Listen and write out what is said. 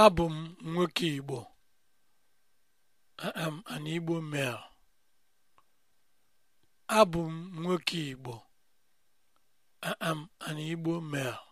Abụ m nwoke Igbo. I am an Igbo Igbo male.